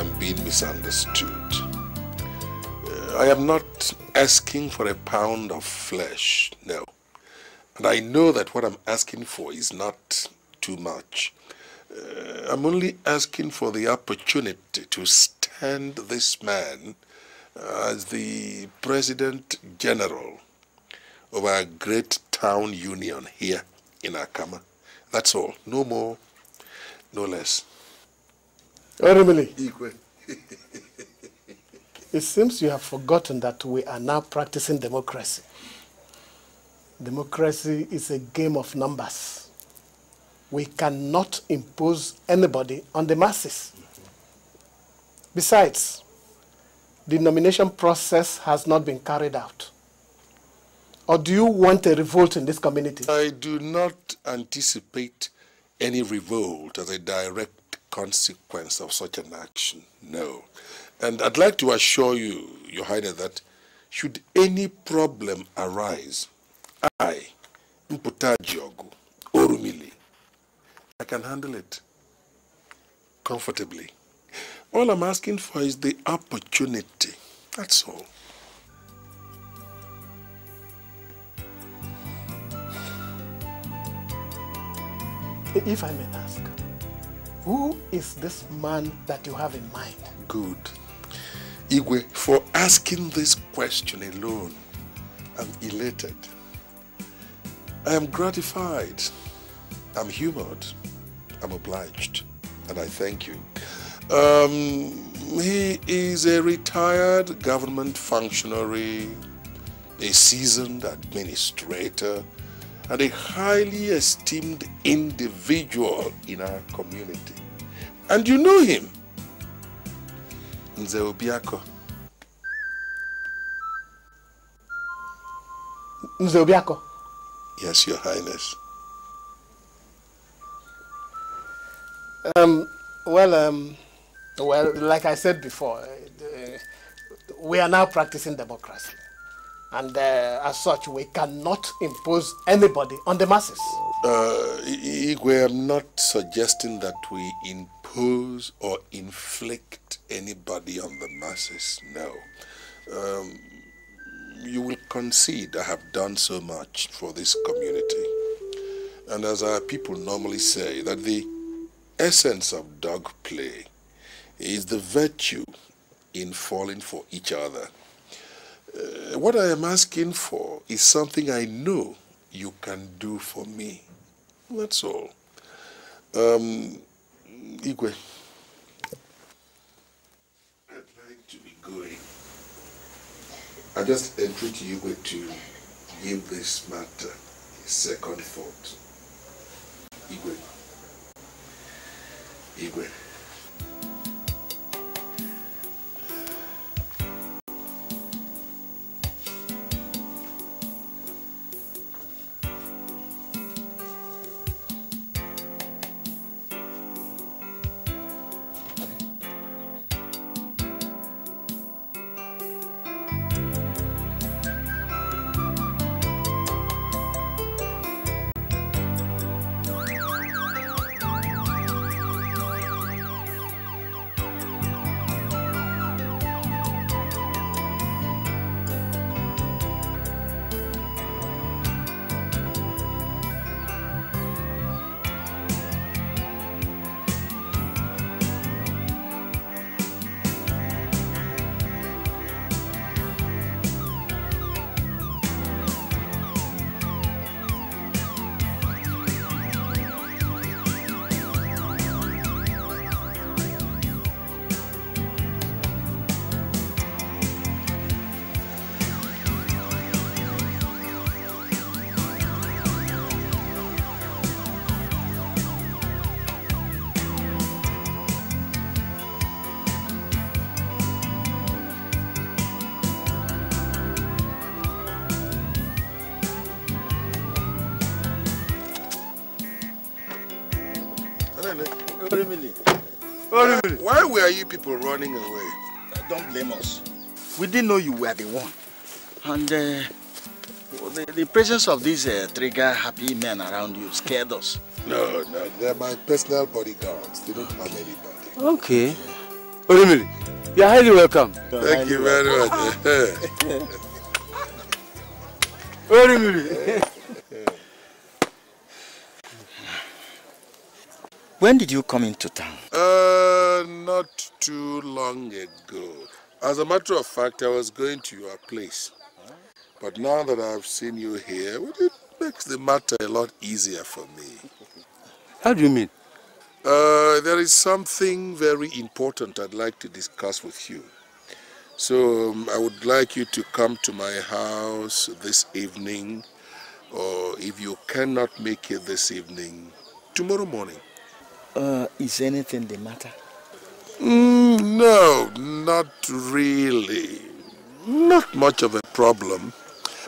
am being misunderstood. Uh, I am not asking for a pound of flesh, no. And I know that what I'm asking for is not too much. Uh, I'm only asking for the opportunity to stand this man as the President General of our great town union here in Akama. That's all. No more, no less. Eremili. Ikwe. it seems you have forgotten that we are now practicing democracy. Democracy is a game of numbers. We cannot impose anybody on the masses. Besides, the nomination process has not been carried out. Or do you want a revolt in this community? I do not anticipate any revolt as a direct consequence of such an action. No. And I'd like to assure you, Your Highness, that should any problem arise, I, Mputajiogu, Orumili, I can handle it comfortably. All I'm asking for is the opportunity. That's all. If I may ask, who is this man that you have in mind? Good. Igwe, for asking this question alone, I'm elated. I am gratified. I'm humored. I'm obliged. And I thank you. Um, he is a retired government functionary, a seasoned administrator, and a highly esteemed individual in our community. And you know him, Nze Obiako. Nze Obiako? Yes, Your Highness. Um, well, um, well, like I said before, uh, we are now practicing democracy. And uh, as such, we cannot impose anybody on the masses. Uh, we're not suggesting that we impose or inflict anybody on the masses, no. Um, you will concede I have done so much for this community. And as our people normally say, that the essence of dog play is the virtue in falling for each other. Uh, what I am asking for is something I know you can do for me. That's all. Um, Igwe. I'd like to be going. I just entreat you Igwe to give this matter a second thought. Igwe. Igwe. Orimili. Orimili. Why were you people running away? Uh, don't blame us. We didn't know you were the one. And uh, the, the, presence of these uh, trigger happy men around you scared us. No, no, they're my personal bodyguards. They don't harm anybody. Okay. Yeah. Orimili, you're highly welcome. You're Thank highly you very welcome. much. Orimili. When did you come into town? Uh, not too long ago. As a matter of fact, I was going to your place. But now that I've seen you here, it makes the matter a lot easier for me. How do you mean? Uh, there is something very important I'd like to discuss with you. So um, I would like you to come to my house this evening, or if you cannot make it this evening, tomorrow morning. Uh, is anything the matter? Mm, no, not really. Not much of a problem,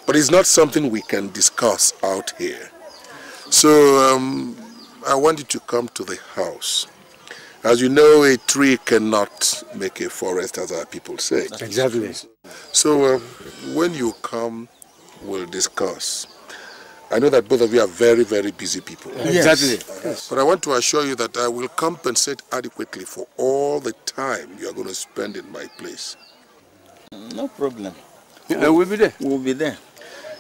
but it's not something we can discuss out here. So um, I want you to come to the house. As you know, a tree cannot make a forest, as our people say. Exactly. So uh, when you come, we'll discuss. I know that both of you are very, very busy people. Yes. Exactly. Yes. But I want to assure you that I will compensate adequately for all the time you are going to spend in my place. No problem. Yeah, we'll, we'll be there. We'll be there.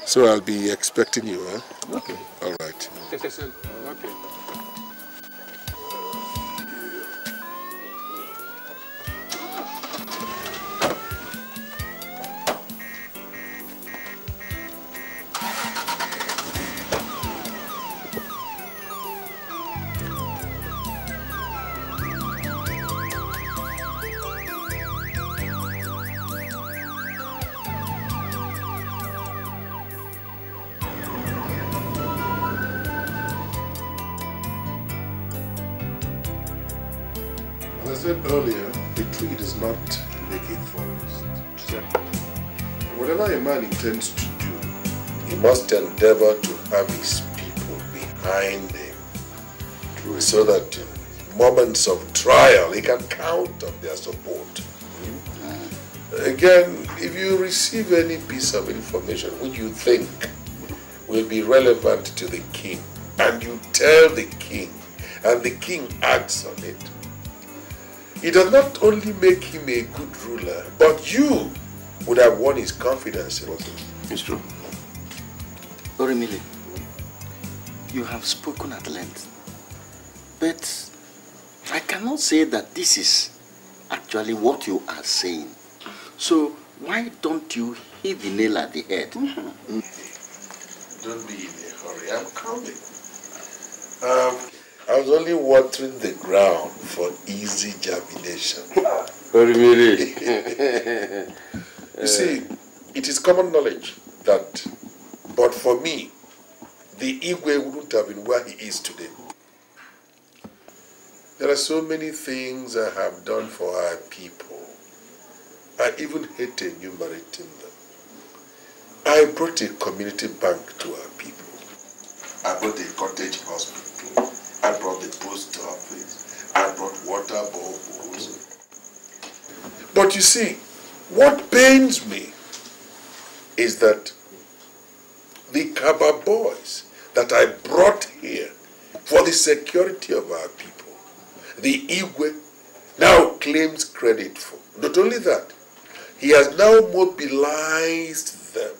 So I'll be expecting you, huh? Okay. All right. Okay. to do, he must endeavor to have his people behind him True. so that in moments of trial he can count on their support. Again, if you receive any piece of information which you think will be relevant to the king and you tell the king and the king acts on it, it does not only make him a good ruler, but you would have won his confidence, It's true. Orimile, you have spoken at length, but I cannot say that this is actually what you are saying. So why don't you hit the nail at the head? Mm-hmm. Don't be in a hurry, I'm coming. Um, I was only watering the ground for easy germination. Orimile. You see, it is common knowledge that, but for me, the Igwe wouldn't have been where he is today. There are so many things I have done for our people. I even hate enumerating them. I brought a community bank to our people. I brought a cottage hospital. I brought the post office. I brought water boreholes. But you see, what pains me is that the Kaba boys that I brought here for the security of our people, the Igwe now claims credit for. Not only that, he has now mobilized them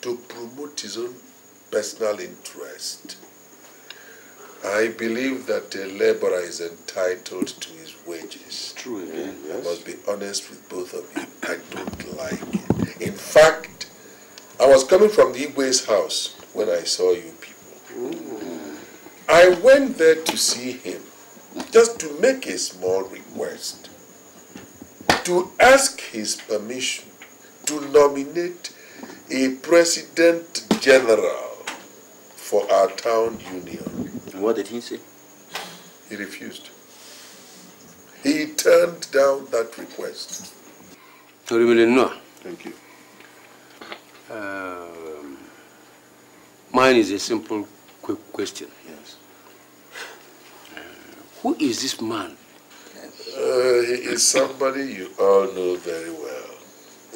to promote his own personal interest. I believe that a laborer is entitled to his wages. True, yes. I must be honest with both of you. I don't like it. In fact, I was coming from the Igwe's house when I saw you people. Ooh. Mm. I went there to see him just to make a small request, to ask his permission to nominate a president general for our town union. And what did he say? He refused. He turned down that request. Thank you. Um, mine is a simple, quick question. Yes. Uh, who is this man? Uh, he is somebody you all know very well.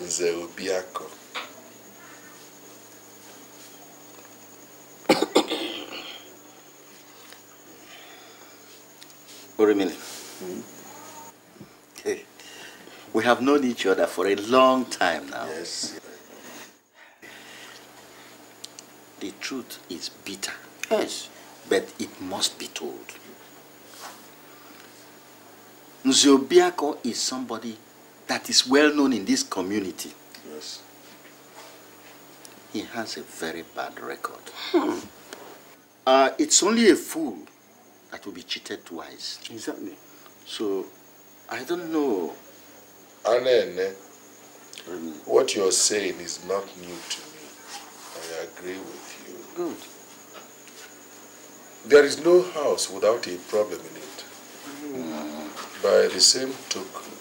Zeobiako. What do you We have known each other for a long time now. Yes. The truth is bitter. Yes. But it must be told. Nziobiako is somebody that is well known in this community. Yes. He has a very bad record. Hmm. Uh, it's only a fool that will be cheated twice. Exactly. So, I don't know. Mm. what you're saying is not new to me. I agree with you. Good. There is no house without a problem in it. Mm. By the same token,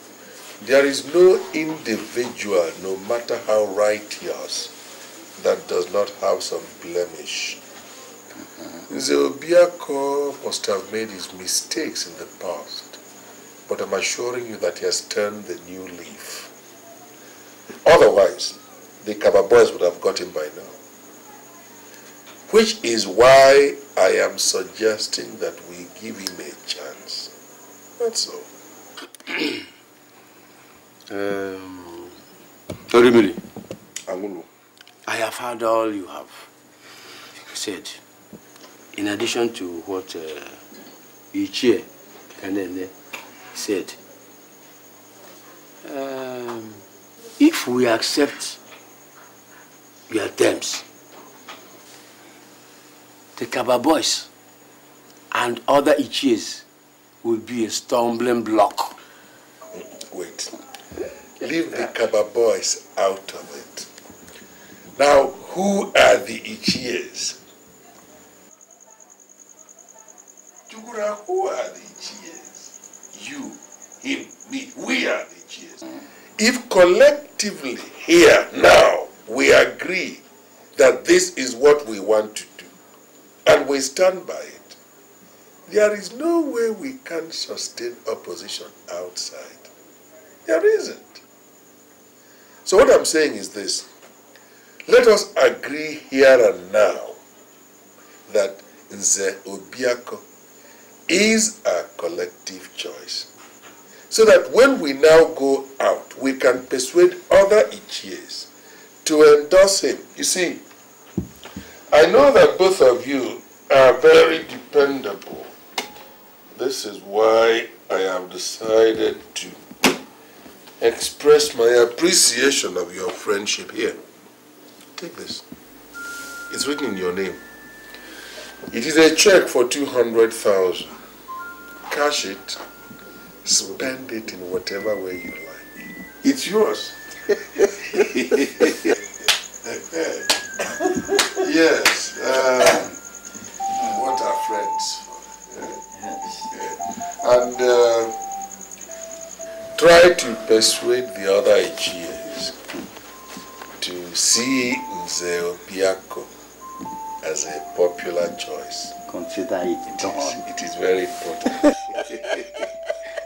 there is no individual, no matter how righteous, that does not have some blemish. Zeobiako must have made his mistakes in the past, but I'm assuring you that he has turned the new leaf. Otherwise, the Kaba boys would have got him by now. Which is why I am suggesting that we give him a chance. That's all. um, Orimili. Angulu. I have heard all you have said in addition to what uh, Ichie Kanene said, um, if we accept your terms, the Kaba boys and other Ichies will be a stumbling block. Wait. Leave the Kaba boys out of it. Now, who are the Ichies? who are the cheers? You, him, me. We are the cheers. If collectively here now we agree that this is what we want to do and we stand by it, there is no way we can sustain opposition outside. There isn't. So what I'm saying is this. Let us agree here and now that Nze Obiako is a collective choice. So that when we now go out, we can persuade other Ichies to endorse him. You see, I know that both of you are very dependable. This is why I have decided to express my appreciation of your friendship here. Take this. It's written in your name. It is a check for 200,000. Cash it, spend it in whatever way you like. It's yours. yes. Uh, what are friends for? And uh, try to persuade the other Igas to see Nzeo Piako as a popular choice. Consider it, it done. Is, it is very important.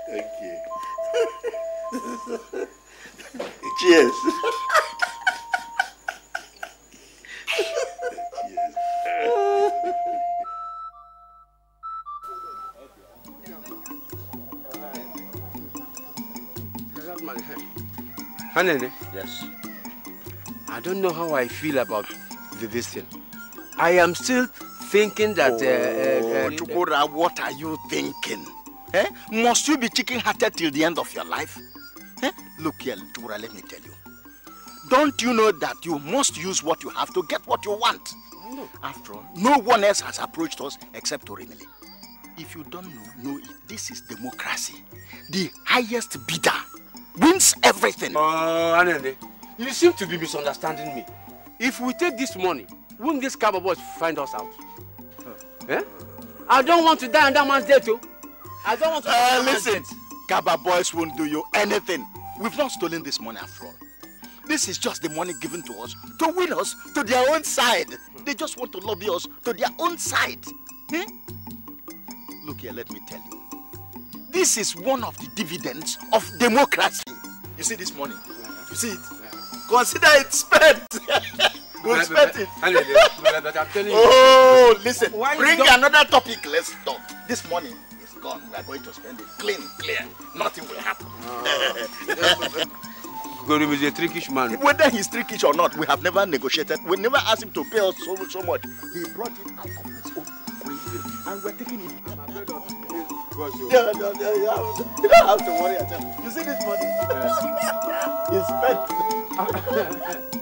Thank you. Cheers. Yes. I don't know how I feel about this thing. I am still thinking that. Oh, uh, uh, uh oh, Chukura, what are you thinking? Eh? Must you be chicken hearted till the end of your life? Eh? Look here, Chukura, let me tell you. Don't you know that you must use what you have to get what you want? No. After all, no one else has approached us except Orimili. If you don't know, know it. This is democracy. The highest bidder wins everything. Oh, uh, Anende, you seem to be misunderstanding me. If we take this money wouldn't these cab boys find us out? Huh. Eh? I don't want to die on that man's day too. Oh. I don't want to. Uh, listen, Gaba boys won't do you anything. We've not stolen this money after all. This is just the money given to us to win us to their own side. They just want to lobby us to their own side. Hmm? Look here, let me tell you. This is one of the dividends of democracy. You see this money? You see it? Consider it spent. We'll respect it. Oh, listen. Why Bring another topic. Let's talk. This morning is gone. We are going to spend it clean, clear. Nothing will happen. Oh. Gorim is a trickish man. Whether he's trickish or not, we have never negotiated. We never asked him to pay us so, so much. He brought it out of his own will. And we're taking it. I'm afraid you. don't have to worry at all. You see this money? Yes. it's spent.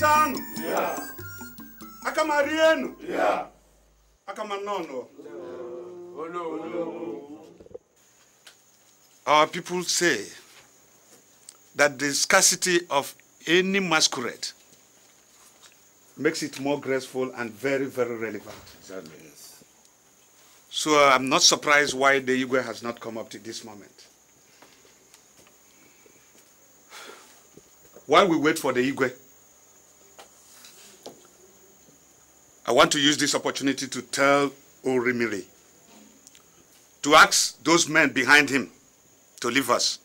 yeah. yeah. our people say that the scarcity of any masquerade makes it more graceful and very, very relevant. Exactly. Yes. So uh, I'm not surprised why the Igwe has not come up to this moment. While we wait for the Igwe, I want to use this opportunity to tell Orimiri to ask those men behind him to leave us.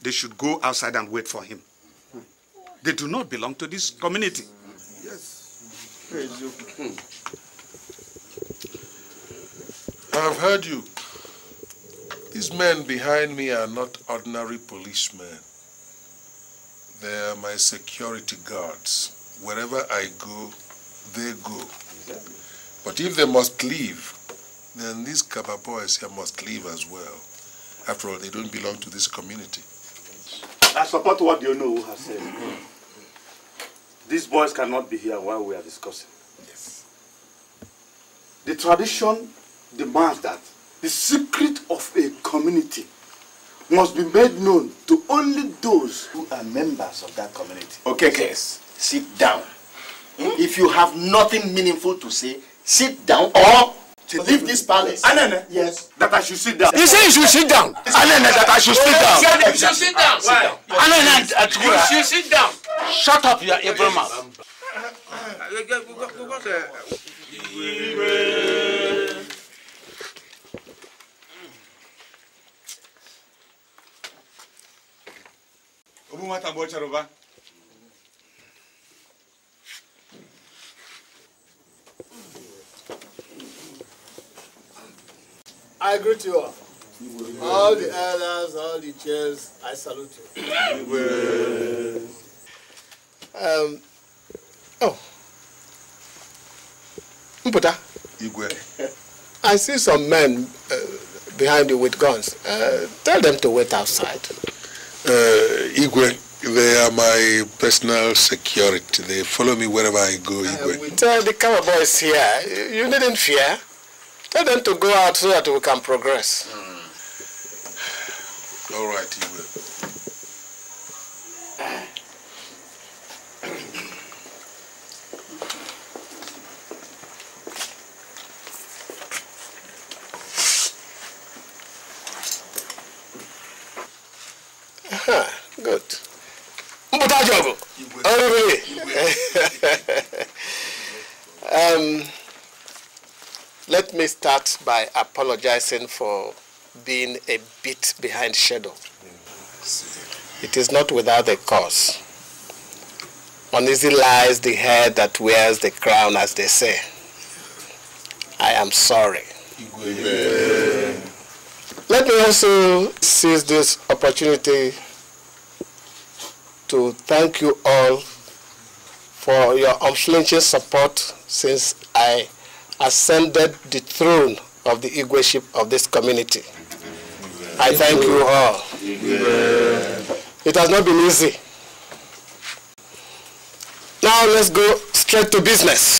They should go outside and wait for him. They do not belong to this community. Yes. I have heard you. These men behind me are not ordinary policemen. They are my security guards wherever I go, they go. But if they must leave, then these Kaba boys here must leave as well. After all, they don't belong to this community. I support what you know has said. These boys cannot be here while we are discussing. Yes. The tradition demands that the secret of a community must be made known to only those who are members of that community. Okay, case. Yes. sit down. Hmm? If you have nothing meaningful to say, sit down or to leave this palace. Anene. Yes. That I should sit down. You say you should sit down. Anene, that I should sit down. You should sit down. Why? Anene, Atukura. You should sit down. Shut up, you evil mouth. Obu mata bocha roba. I greet you all. All the elders, all the chairs, I salute you. um, oh. Mputa. Igwe. I see some men uh, behind you with guns. Uh, tell them to wait outside. Uh, Igwe, they are my personal security. They follow me wherever I go, uh, Igwe. we tell the cover boys here, you needn't fear. Tell them to go out so that we can progress. Mm. All right. start by apologizing for being a bit behind schedule. It is not without a cause. Uneasy lies the head that wears the crown, as they say. I am sorry. Amen. Let me also seize this opportunity to thank you all for your unflinching support since I ascended the throne of the Igweship of this community. I thank you all. It has not been easy. Now let's go straight to business.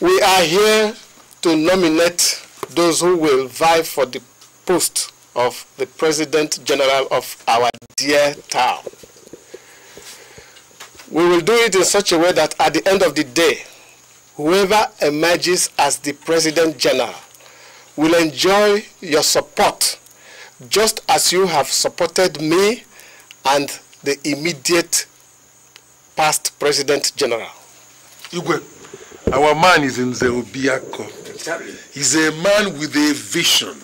We are here to nominate those who will vie for the post of the President General of our dear town. We will do it in such a way that at the end of the day, whoever emerges as the President General will enjoy your support just as you have supported me and the immediate past President General. Igwe, our man is in Zeobiako. He's a man with a vision.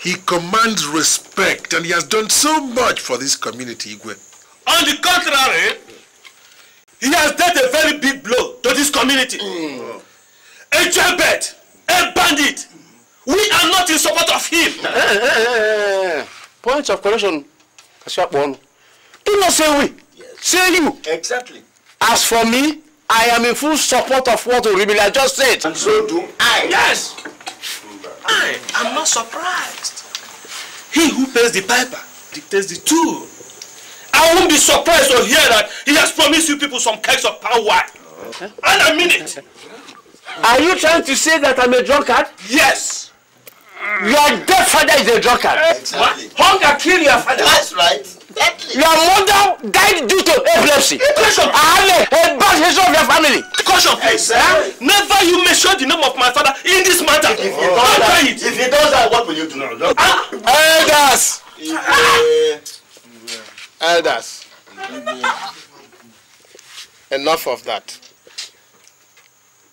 He commands respect and he has done so much for this community, Igwe. On the contrary, he has dealt a very big blow to this community. Mm. A jailbird, a bandit. We are not in support of him. Hey, eh, eh, eh, Point of correction, Kasiapon. Do not say we, yes. say you. Exactly. As for me, I am in full support of what Oribila just said. And so do I. Yes. I am not surprised. He who pays the piper dictates the tune. I won't be surprised to hear that he has promised you people some kinds of power. And I mean it. Are you trying to say that I'm a drunkard? Yes. Your dead father is a drunkard. Exactly. What? Hunger killed your father. That's right. Exactly. Your mother died due to epilepsy. Question. I have a, bad history of your family. Question, please. Exactly. Never you mention the name of my father in this matter. If he does, that, what will you do? now? Ah. Elders. Uh, Elders, enough of that.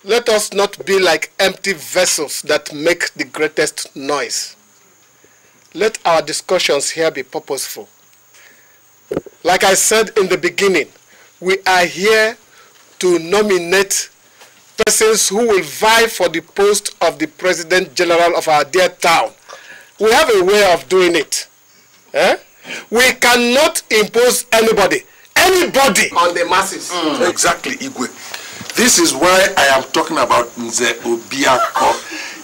Let us not be like empty vessels that make the greatest noise. Let our discussions here be purposeful. Like I said in the beginning, we are here to nominate persons who will vie for the post of the President General of our dear town. We have a way of doing it. Eh? we cannot impose anybody anybody on the masses. Mm. exactly igwe this is why i am talking about nze obiako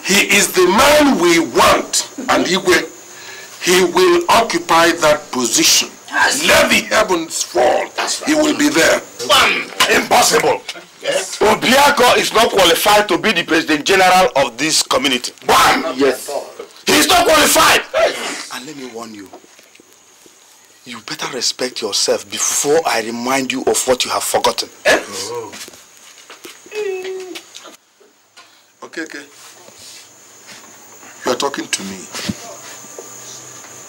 he is the man we want and igwe he will occupy that position yes. let the heavens fall right. he will be there Bam. impossible yes. obiako is not qualified to be the president general of this community One, yes he is not qualified and let me warn you You better respect yourself before I remind you of what you have forgotten. Eh? Oh. Okay, okay. You are talking to me.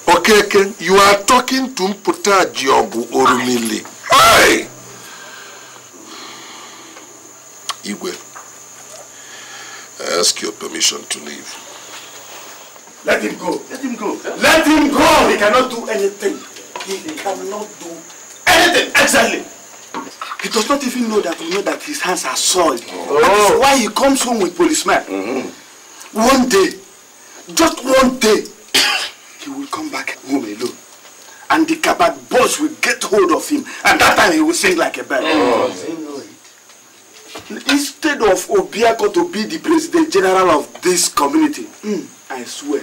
Okay, okay. You are talking to Mputa Diogu Orumile. Hey! Igwe, I ask your permission to leave. Let him go. Let him go. Let him go! He cannot do anything. he, he cannot do anything exactly. He does not even know that we know that his hands are soiled. Oh. That why he comes home with policemen. Mm-hmm. One day, just one day, he will come back home alone. And the kabat boss will get hold of him. And that time he will sing like a bird. Oh. instead of Obiako to be the president general of this community, mm, I swear,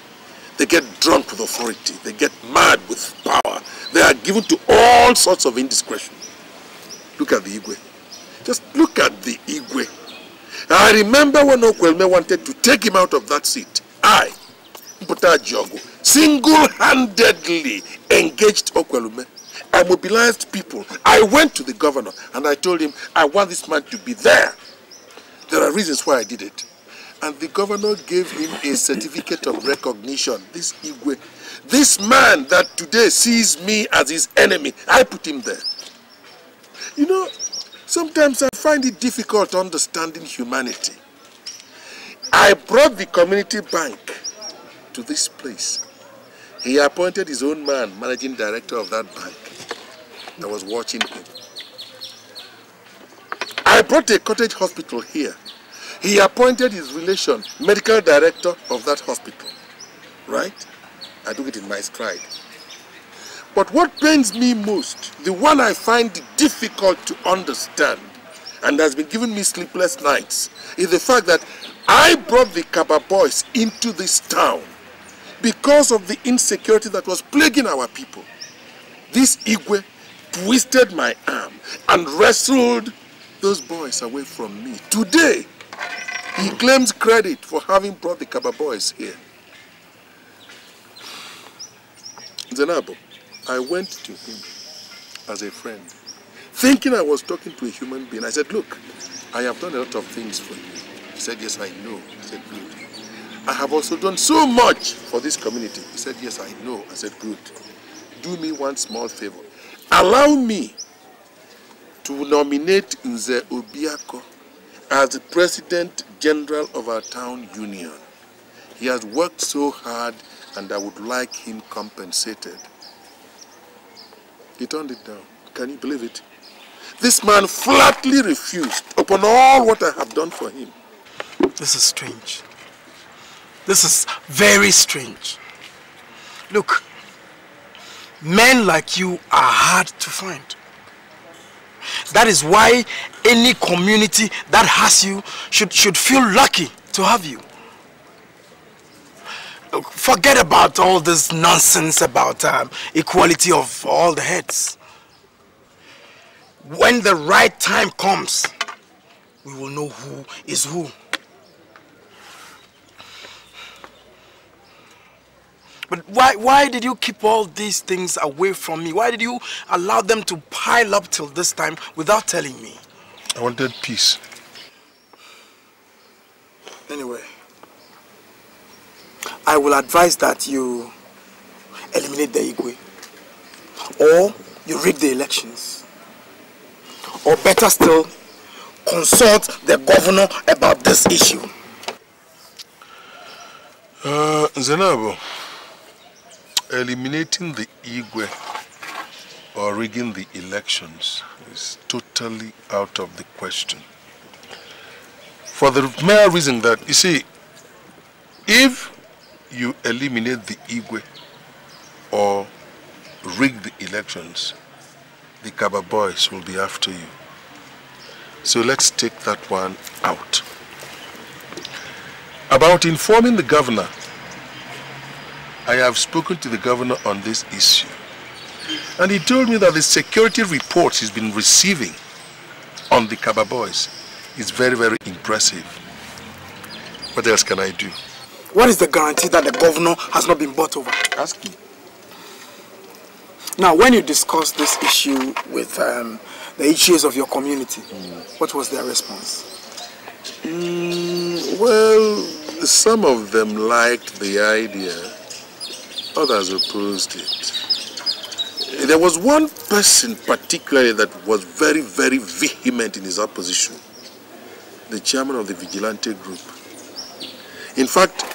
They get drunk with authority. They get mad with power. They are given to all sorts of indiscretion. Look at the Igwe. Just look at the Igwe. I remember when Okwelme wanted to take him out of that seat. I, Mputa single-handedly engaged Okwelme. I mobilized people. I went to the governor and I told him, I want this man to be there. There are reasons why I did it. And the governor gave him a certificate of recognition. This Igwe, this man that today sees me as his enemy, I put him there. You know, sometimes I find it difficult understanding humanity. I brought the community bank to this place. He appointed his own man, managing director of that bank, that was watching him. I brought a cottage hospital here. He appointed his relation, medical director of that hospital. Right? I took it in my stride. But what pains me most, the one I find difficult to understand, and has been giving me sleepless nights, is the fact that I brought the Kaba boys into this town because of the insecurity that was plaguing our people. This Igwe twisted my arm and wrestled those boys away from me. Today, he claims credit for having brought the Kaba boys here. Zenabo, I went to him as a friend, thinking I was talking to a human being. I said, look, I have done a lot of things for you. He said, yes, I know. I said, good. I have also done so much for this community. He said, yes, I know. I said, good. Do me one small favor. Allow me to nominate Nze Obiako as the President General of our town union, he has worked so hard and I would like him compensated. He turned it down. Can you believe it? This man flatly refused upon all what I have done for him. This is strange. This is very strange. Look, men like you are hard to find. That is why any community that has you should, should feel lucky to have you. Forget about all this nonsense about um, equality of all the heads. When the right time comes, we will know who is who. But why, why did you keep all these things away from me? Why did you allow them to pile up till this time without telling me? I wanted peace. Anyway, I will advise that you eliminate the Igwe. Or you rig the elections. Or better still, consult the governor about this issue. Uh, Zenabo eliminating the Igwe or rigging the elections is totally out of the question. For the mere reason that, you see, if you eliminate the Igwe or rig the elections, the Kaba boys will be after you. So let's take that one out. About informing the governor I have spoken to the governor on this issue. And he told me that the security reports he's been receiving on the Kaba boys is very, very impressive. What else can I do? What is the guarantee that the governor has not been bought over? Ask him. Now, when you discussed this issue with um, the issues of your community, mm. what was their response? Mm, well, some of them liked the idea others opposed it. There was one person particularly that was very, very vehement in his opposition, the chairman of the vigilante group. In fact,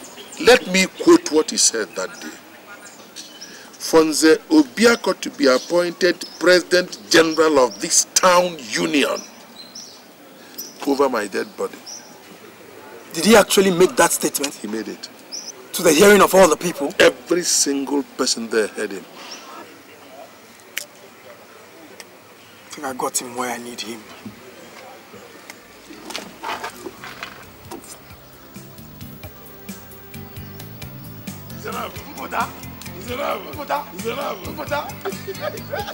let me quote what he said that day. Fonze Obiako to be appointed President General of this town union over my dead body. Did he actually make that statement? He made it to the hearing of all the people? Every single person there heard him. I think I got him where I need him. Miserable. Miserable. Miserable. Miserable.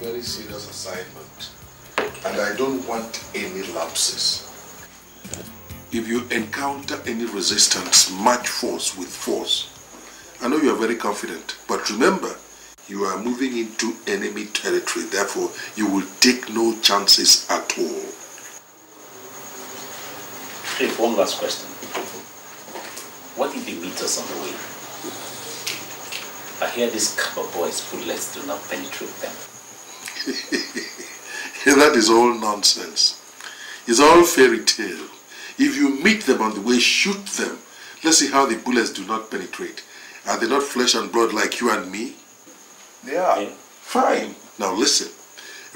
very serious assignment and I don't want any lapses. If you encounter any resistance, match force with force. I know you are very confident, but remember, you are moving into enemy territory, therefore you will take no chances at all. Hey, one last question. What if he meet us on the way? I hear these copper boys' bullets do not penetrate them. that is all nonsense. It's all fairy tale. If you meet them on the way, shoot them. Let's see how the bullets do not penetrate. Are they not flesh and blood like you and me? They are. Yeah. Fine. Now listen.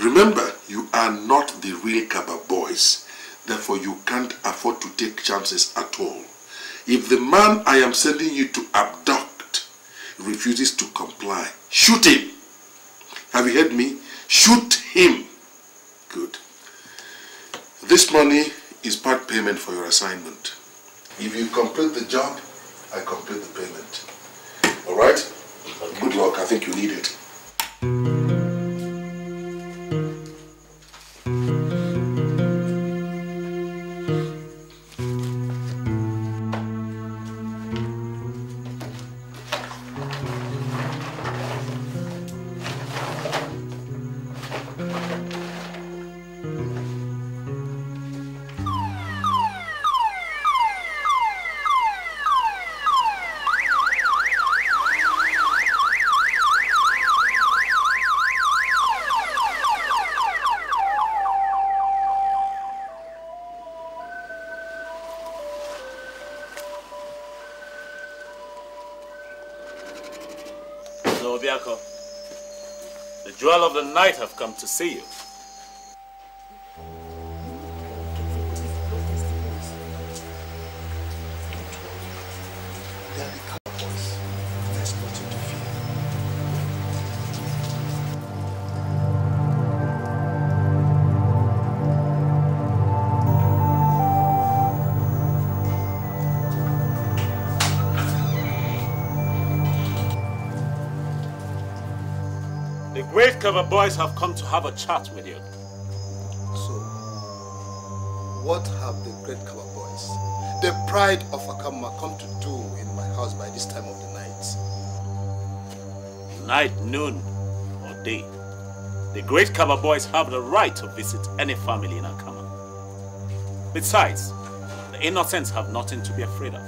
Remember, you are not the real Kaba boys. Therefore, you can't afford to take chances at all. If the man I am sending you to abduct refuses to comply, shoot him. Have you heard me? Shoot him. Good. This money is part payment for your assignment. If you complete the job, I complete the payment. All right? Okay. Good luck. I think you need it. the night have come to see you. Undercover boys have come to have a chat with you. So, what have the Great Cover boys, the pride of Akama, come to do in my house by this time of the night? Night, noon, or day, the Great Cover boys have the right to visit any family in Akama. Besides, the innocents have nothing to be afraid of.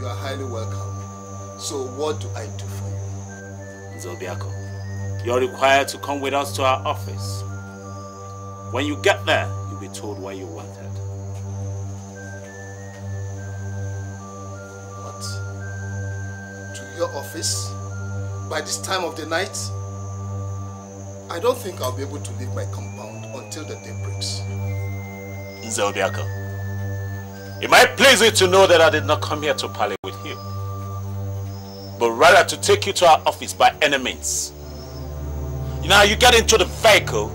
You are highly welcome. So what do I do for you? Zobiako. You're required to come with us to our office. When you get there, you'll be told why you wanted. What? To your office? By this time of the night? I don't think I'll be able to leave my compound until the day breaks. Nzelbiaka, it might please you to know that I did not come here to parley with you, but rather to take you to our office by any means. Now you get into the vehicle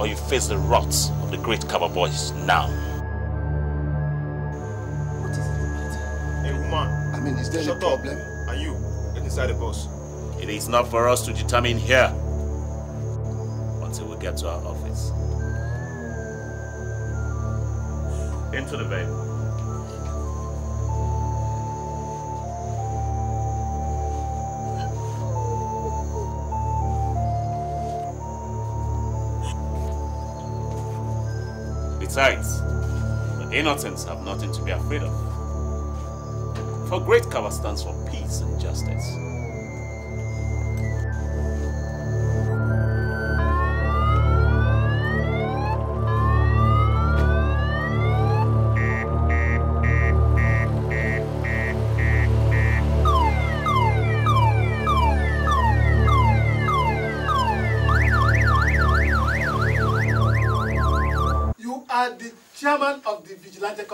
or you face the wrath of the great cover boys now. What is it? Hey woman. I mean, is there Shut a problem? Up. Are you? Get inside the bus. It is not for us to determine here until we get to our office. Into the vehicle. Besides, the innocents have nothing to be afraid of. For Great Kava stands for peace and justice.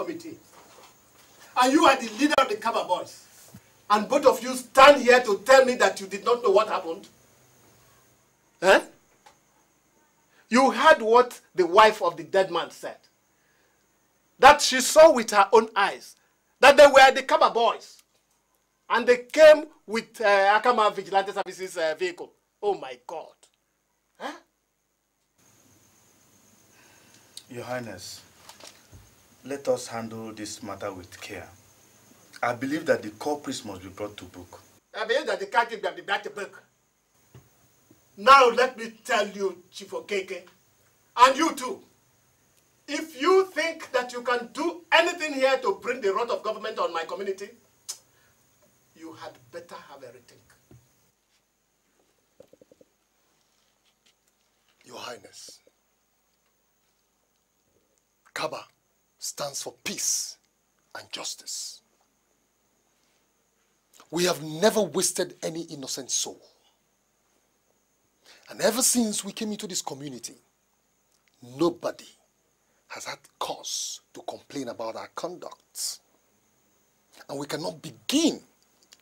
committee. And you are the leader of the Kaba Boys. And both of you stand here to tell me that you did not know what happened. Eh? You heard what the wife of the dead man said. That she saw with her own eyes that they were the Kaba Boys. And they came with uh, Akama Vigilante Services uh, vehicle. Oh my God. Huh? Your Highness, let us handle this matter with care. I believe that the culprits must be brought to book. I believe that the captain must be brought to book. Now let me tell you, Chief Okeke, and you too, if you think that you can do anything here to bring the rot of government on my community, you had better have a rethink. Your Highness, Kaba stands for peace and justice. We have never wasted any innocent soul. And ever since we came into this community, nobody has had cause to complain about our conduct. And we cannot begin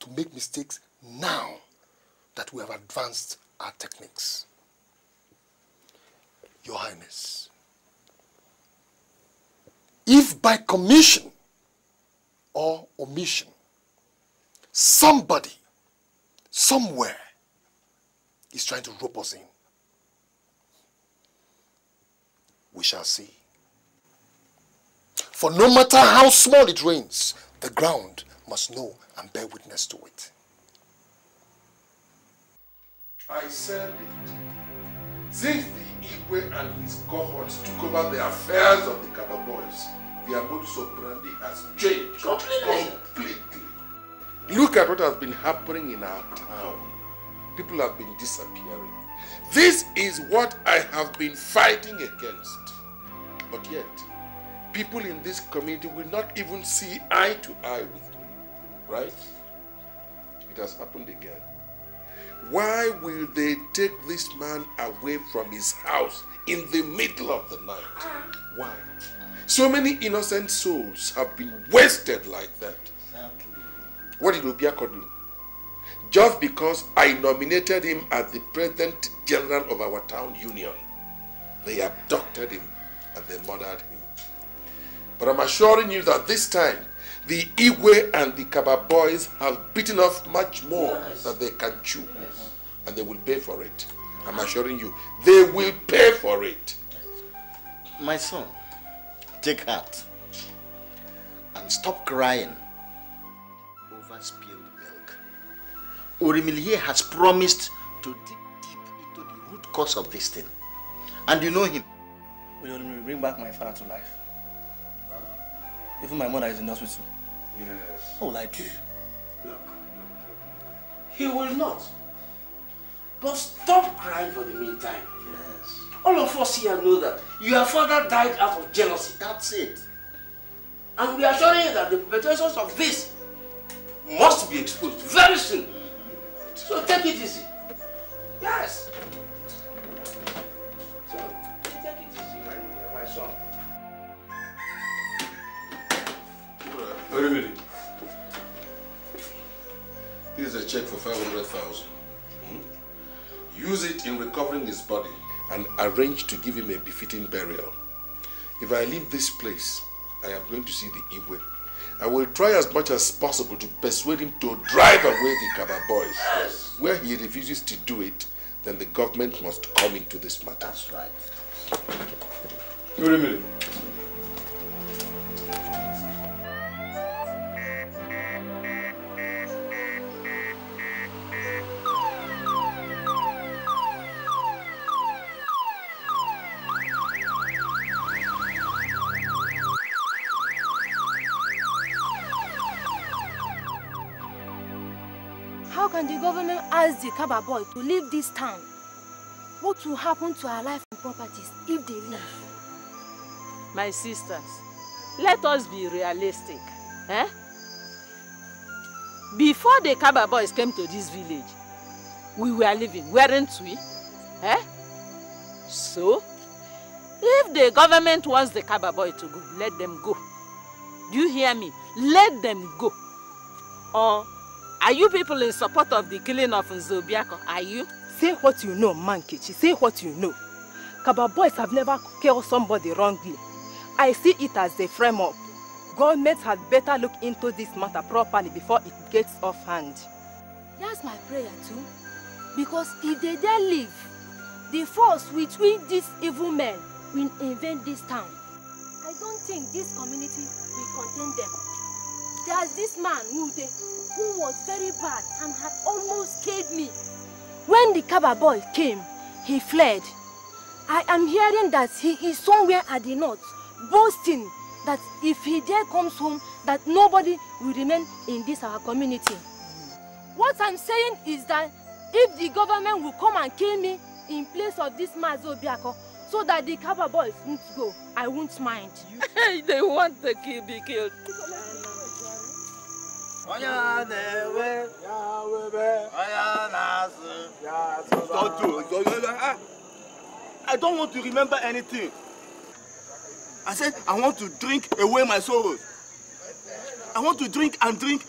to make mistakes now that we have advanced our techniques. Your Highness, if by commission or omission, somebody, somewhere, is trying to rope us in, we shall see. For no matter how small it rains, the ground must know and bear witness to it. I said it. Since the Igwe and his cohorts took over the affairs of the Kaba boys, their modus operandi has changed completely. completely. Look at what has been happening in our town. People have been disappearing. This is what I have been fighting against. But yet, people in this community will not even see eye to eye with me. Right? It has happened again. Why will they take this man away from his house in the middle of the night? Why? So many innocent souls have been wasted like that. Exactly. What did Obiako do? Just because I nominated him as the president general of our town union, they abducted him and they murdered him. But I'm assuring you that this time the Igwe and the Kaba boys have bitten off much more yes. than they can chew. Yes. And they will pay for it. I'm assuring you, they will pay for it. My son, take heart and stop crying over spilled milk. Urimilye has promised to dig deep into the root cause of this thing. And you know him. Will you bring back my father to life? Even my mother is in hospital. Yes. What will I do? Look, He will not. But stop crying for the meantime. Yes. All of us here know that your father died out of jealousy. That's it. And we are showing you that the perpetrators of this must be exposed very soon. So take it easy. Yes. check for 500,000. Hmm? Use it in recovering his body and arrange to give him a befitting burial. If I leave this place, I am going to see the Igwe. I will try as much as possible to persuade him to drive away the Kaba boys. Yes. Where he refuses to do it, then the government must come into this matter. That's right. Kaba boy to leave this town? What will happen to our life and properties if they leave? My sisters, let us be realistic. Eh? Before the Kaba boys came to this village, we were living, weren't we? Eh? So, if the government wants the Kaba boy to go, let them go. Do you hear me? Let them go. Or Are you people in support of the killing of Nzobiako? Are you? Say what you know, Mankichi. Say what you know. Kaba boys have never killed somebody wrongly. I see it as a frame-up. Government had better look into this matter properly before it gets off hand. That's my prayer too. Because if they dare leave, the force with which these evil men will invent this town, I don't think this community will contain them. There's this man, Mute, Ogun was very bad and had almost killed me. When the Kaba boy came, he fled. I am hearing that he is somewhere at the north, boasting that if he there comes home, that nobody will remain in this our community. What I'm saying is that if the government will come and kill me in place of this Mazo Biako, so that the Kaba boys won't go, I won't mind. they want to kill, be killed. Ah, I don't want to remember anything. I said I want to drink away my sorrows. I want to drink and drink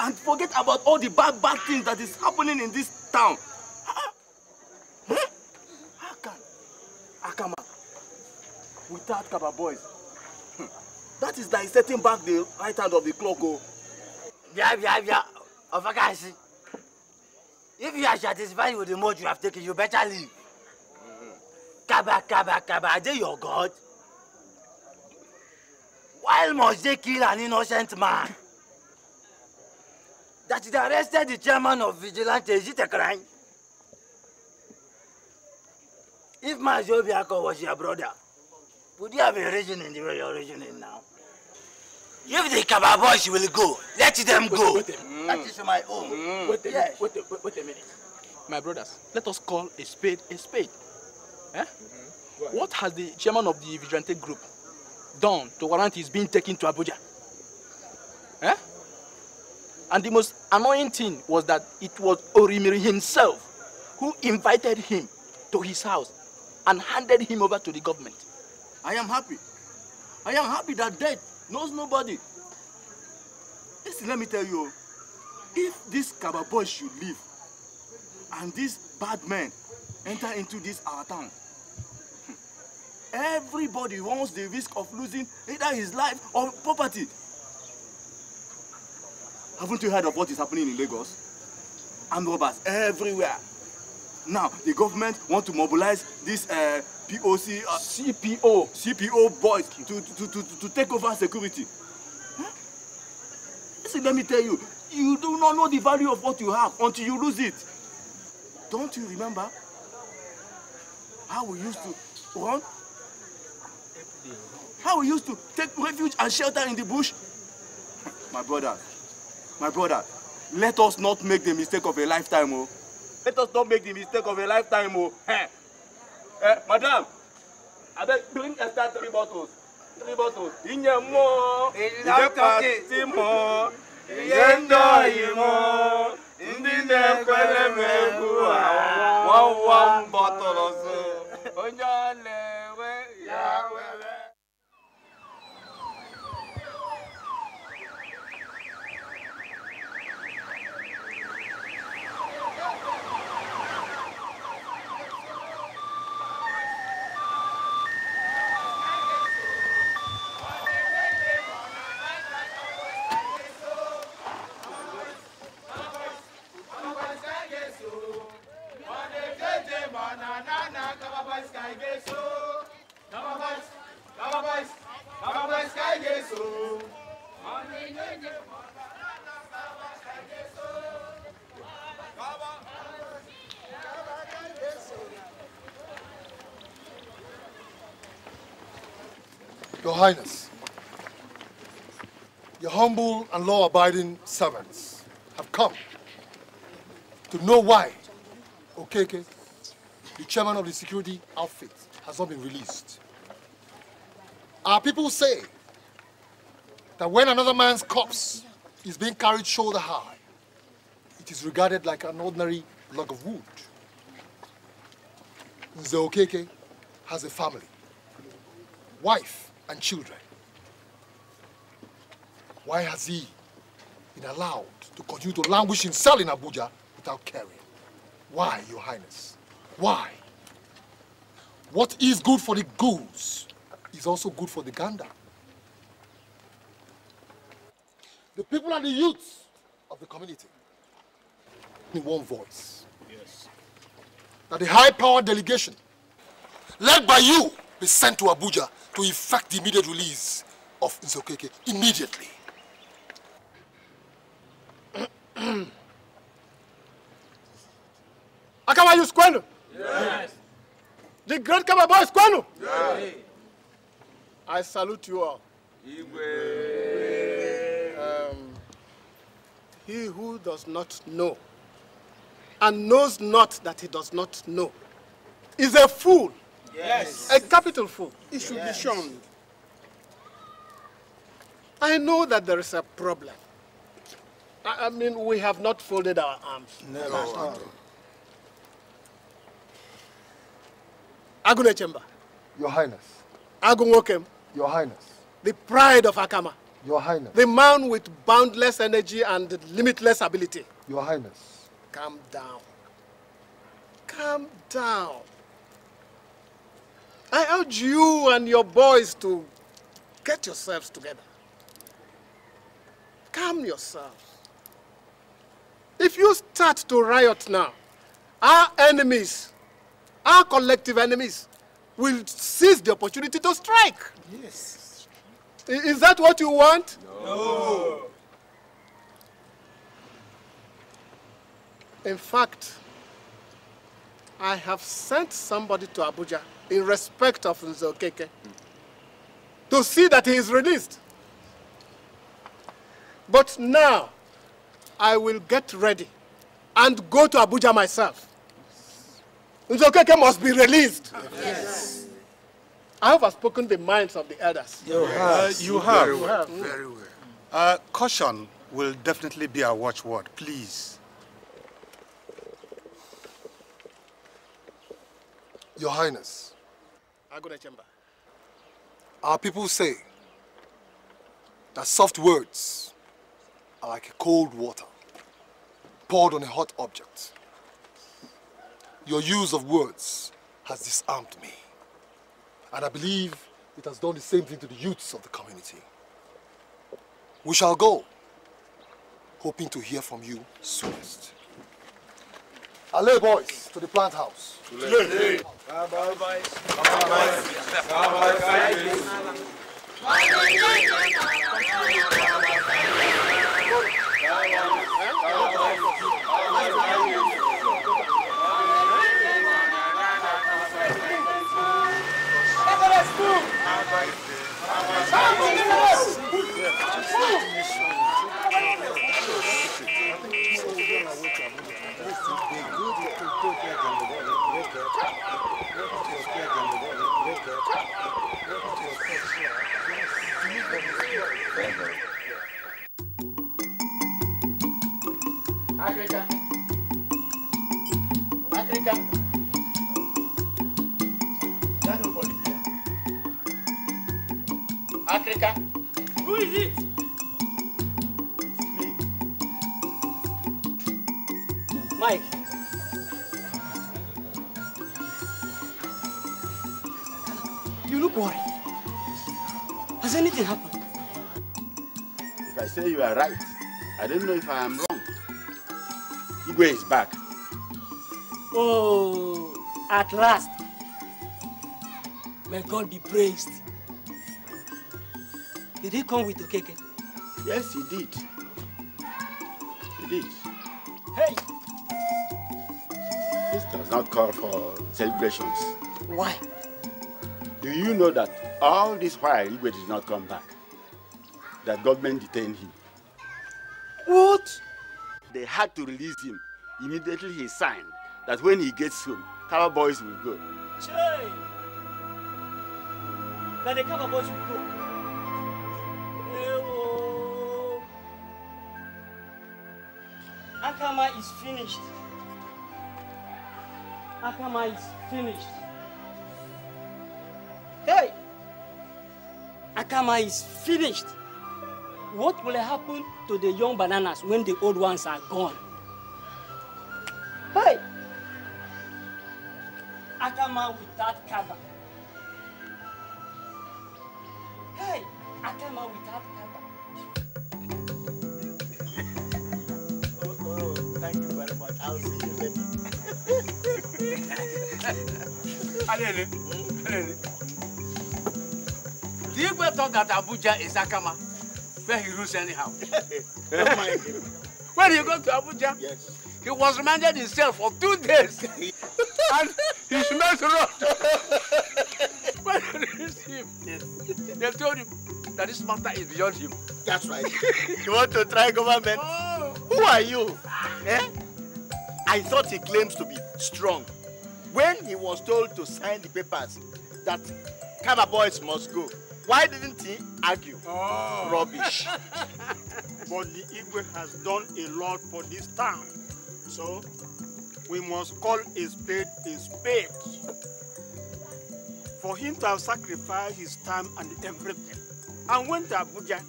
and forget about all the bad, bad things that is happening in this town. Ah, hmm? How can Akama without Kaba boys? Hmm. That is like setting back the right hand of the clock. Oh. Bia, bia, bia. Of a guy, see. If you are satisfied with the mode you have taken, you better leave. Kaba, kaba, kaba, are they your God? Why must they kill an innocent man? That they arrested the chairman of Vigilante, is it a crime? If my Mazobiako was your brother, would you have been reasoning the way you're reasoning now? If the Kaba boys will go, let them go. Wait, wait mm. That is my own. Mm. Wait, a, yes. wait, wait, wait a minute. My brothers, let us call a spade a spade. Eh? Mm-hmm. What has the chairman of the Vigilante group done to warrant his being taken to Abuja? Eh? And the most annoying thing was that it was Orimiri himself who invited him to his house and handed him over to the government. I am happy. I am happy that death knows nobody. Listen, let me tell you, if this Kababoy should leave and this bad man enter into this our town, everybody runs the risk of losing either his life or property. Haven't you heard of what is happening in Lagos? Armed robbers everywhere. Now, the government want to mobilize this uh, POC, uh, CPO, CPO boys to, to, to, to take over security. Huh? Listen, let me tell you, you do not know the value of what you have until you lose it. Don't you remember how we used to run? How we used to take refuge and shelter in the bush? My brother, my brother, let us not make the mistake of a lifetime, oh. Let us not make the mistake of a lifetime, oh. Eh, madam, I beg bring extra three bottles. Three bottles. Ìyẹn mọ́. Ìjẹ́ pàtí mọ́. Ìyẹ́ ń dọ̀ yìí mọ́. Ndị na-ekwere m egwu a, one one bottle of Highness, your humble and law-abiding servants have come to know why Okeke, the chairman of the security outfit, has not been released. Our people say that when another man's corpse is being carried shoulder high, it is regarded like an ordinary log of wood. Nze Okeke has a family, wife, and children. Why has he been allowed to continue to languish in cell in Abuja without caring? Why, Your Highness? Why? What is good for the goose is also good for the gander. The people and the youths of the community in one voice. Yes. That the high-powered delegation led by you be sent to Abuja to effect the immediate release of Nzokeke immediately. Akawayu is Yes. The great Kababo is Yes. I salute you all. Um, he who does not know and knows not that he does not know is a fool Yes. A capital fool. It should yes. be shown. I know that there is a problem. I, mean, we have not folded our arms. Never. No, Agune Chamber. Your Highness. Agunwokem. Your Highness. The pride of Akama. Your Highness. The man with boundless energy and limitless ability. Your Highness. Calm down. Calm down. I urge you and your boys to get yourselves together. Calm yourselves. If you start to riot now, our enemies, our collective enemies, will seize the opportunity to strike. Yes. Is that what you want? No. In fact, I have sent somebody to Abuja in respect of Nzokeke to see that he is released. But now, I will get ready and go to Abuja myself. Nzokeke must be released. yes. I have spoken the minds of the elders. You have. Uh, you have. Very well. Very well. Uh, caution will definitely be our watchword, please. Your Highness, Chamber. Our people say that soft words are like cold water poured on a hot object. Your use of words has disarmed me. And I believe it has done the same thing to the youths of the community. We shall go, hoping to hear from you soonest. Allez, boys, to the plant house. África. África. Dá no Bolívia. África. are right. I don't know if I am wrong. Igwe is back. Oh, at last. May God be praised. Did he come with Okeke? Yes, he did. He did. Hey! This does not call for celebrations. Why? Do you know that all this while Igwe did not come back? That government detained him. What? They had to release him. Immediately he signed that when he gets home, Kaba boys will go. Chey! That the Kaba boys will go. Ewo. Akama is finished. Akama is finished. Hey! Akama is finished. What will happen to the young bananas when the old ones are gone? Hey! Akama without cover. Hey! Akama without cover. oh, thank you very much. I'll see you later. Alele, Alele. Do you ever thought that Abuja is Akama? where he rules anyhow. do When he got to Abuja, yes. he was reminded himself for two days. and he smelled rot. when they reached him, they told him that this matter is beyond him. That's right. you want to try government? Oh. Who are you? eh? I thought he claims to be strong. When he was told to sign the papers that Kama boys must go, why didn't he argue? Oh. Rubbish. but the Igwe has done a lot for this town. So, we must call a spade a spade. For him to have sacrificed his time and everything, and went to Abuja,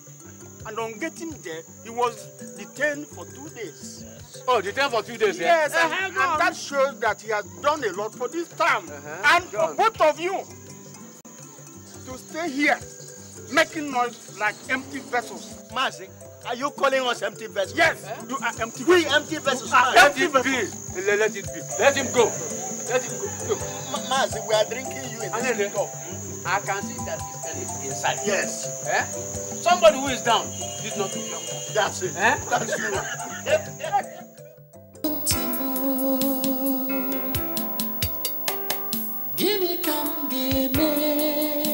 and on getting there, he was detained for two days. Yes. Oh, detained for two days, yes. and, uh-huh. and that shows that he has done a lot for this town uh -huh. and John. for both of you to stay here making noise like empty vessels. Mazi, are you calling us empty vessels? Yes, eh? you are empty. We empty vessels. Are empty let vessels. it be. Let it be. Let him go. Let him go. Look. Ma Mazi, we are drinking you in and cup. I can see that this pen is inside. Yes. Eh? Somebody who is down did not do your That's it. Eh? That's you. Give me come, give me.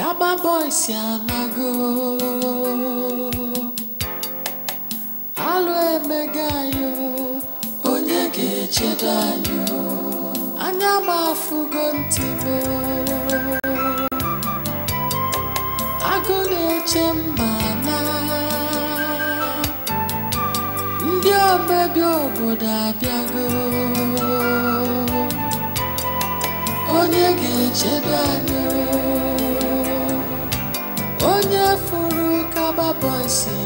Gaba boy si anago alụ emega anyị onye ga-echedo anyị anya m afụgo ntị m agụ na-eche mma na ndị omebi obodo abịago onye ga echeta anyị pode ser.